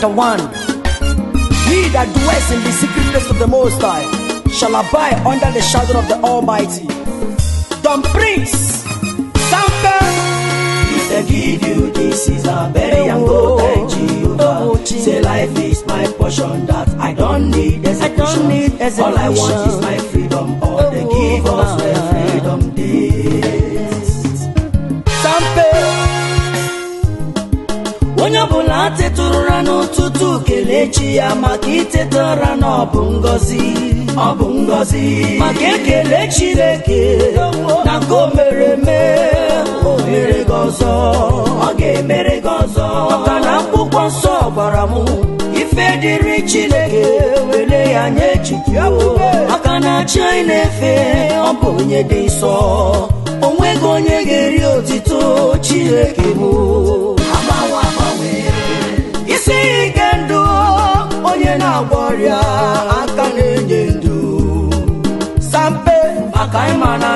The one, He that dwells in the secret place of the Most High shall abide under the shadow of the Almighty. Don Prince, Sample. Mr. Gideon, this is a very young go Jehovah. Oh, oh, Say life is my portion that I don't need I don't need execution. All I want is my freedom. na-echi ya maka iteta ụra na ọbụ ngozi ngọzi ọ ngọzi maka ekele chineke na nke mere eme o gị ọzọ ọ ga-emere gị ọzọ maka na akwụkwọ nsọ ọgbara m ife dịrị chineke were ya nye echiche maka na achị anyị na-efe ọ bụ onye dị nsọ o nweghị onye ga-eri otito chineke mụ.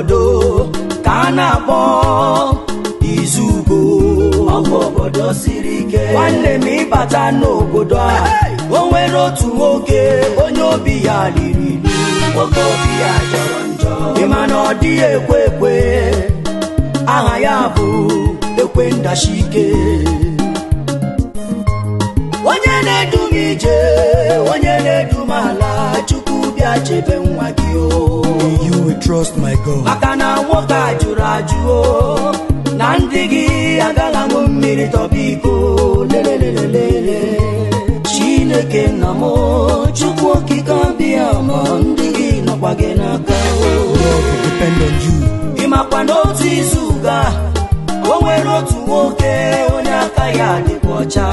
obodo ka a na-akpọ izugo obodo siri ike nwanne m ịbata n'obodo a o nwere otu nwoke onye obi ya riri nwoke obi ya jọrọ njọ ịma na ọ dịghị ekwe ekwe aha ya bụ ekwe ndashike onye na-edu m ije onye na-edu m ala chukwu bịa chebe nwa gị o iko na ndị gị agaghị aṅụ mmiri tọba iko lelelelele chineke nna mụ chukwu okike abịa ma ndị gị nọkwa gị n'aka ị makwa n'otu izu ga o nwere otu nwoke onye aka ya dịkwa ọcha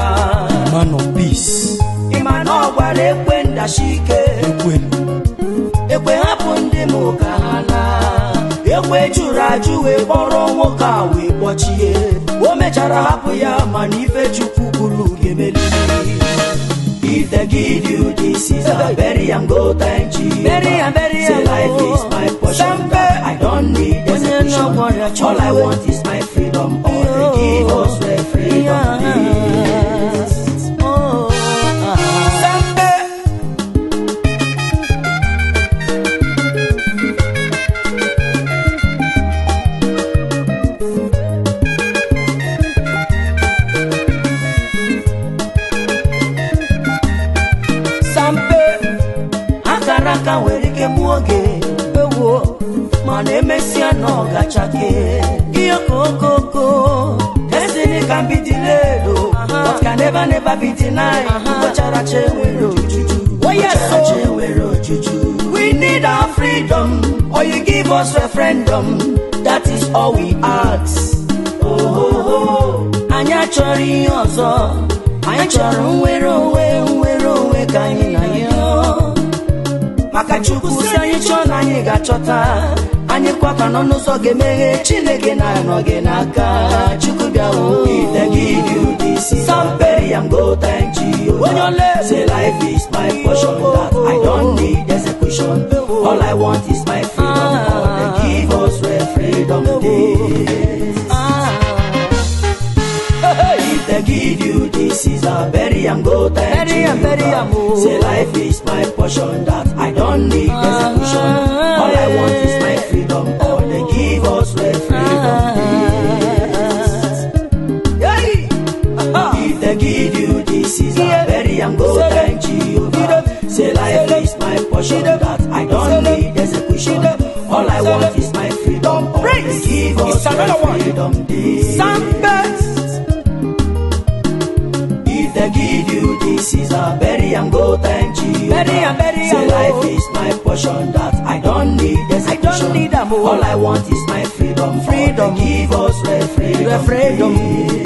ịma peace ị ma na ọ gwara ekwe ndachi ike ekwe hapụ ndị m ka ha laa ekwe ju Nkeachi wee kpọrọ nwoke a wee kpọchie o mechara hapụ ya ife chukwu If they give you this is a bury and go thank you. Bury bury Say life is my I don't need execution. All I want is ọ̀gá chake. Iyokokoko, destiny can be delayed o, but can never never be denied. Ochara chewere ojuju, ochara oh, oh. chewere ojuju. We need our freedom, or oh, you give us referendum, that is all we ask. Ohoho, anyị achọrọ ihe ọzọ, anyị chọrọ nwere onwe nwere onwe ka anyị na ya. Maka Chukwu si anyị chọọ na anyị ga-achọta. anyịkwa ka nọ n'ụzọ ga-emeghe chineke na-anọ gị n'aka chukwu bịa ite gị say life is my portion that I don't need execution all I want is my freedom God give us freedom dey give you this is a bury and go thank you bury say life is my portion that I don't need uh bury and go thank Jehovah. Say life is my portion that I don't need execution. All I want is my freedom. Praise. Give us my freedom. Sambes. If they give you this is a bury and go thank you. Bury and bury Say life is my portion that I don't need execution. I don't need a All I want is my freedom. Freedom. Give us my freedom. freedom.